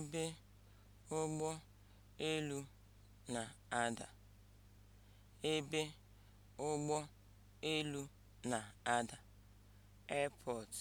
ebe ụgbọ elu na-ada. ebe ụgbọ elu na-ada (airport)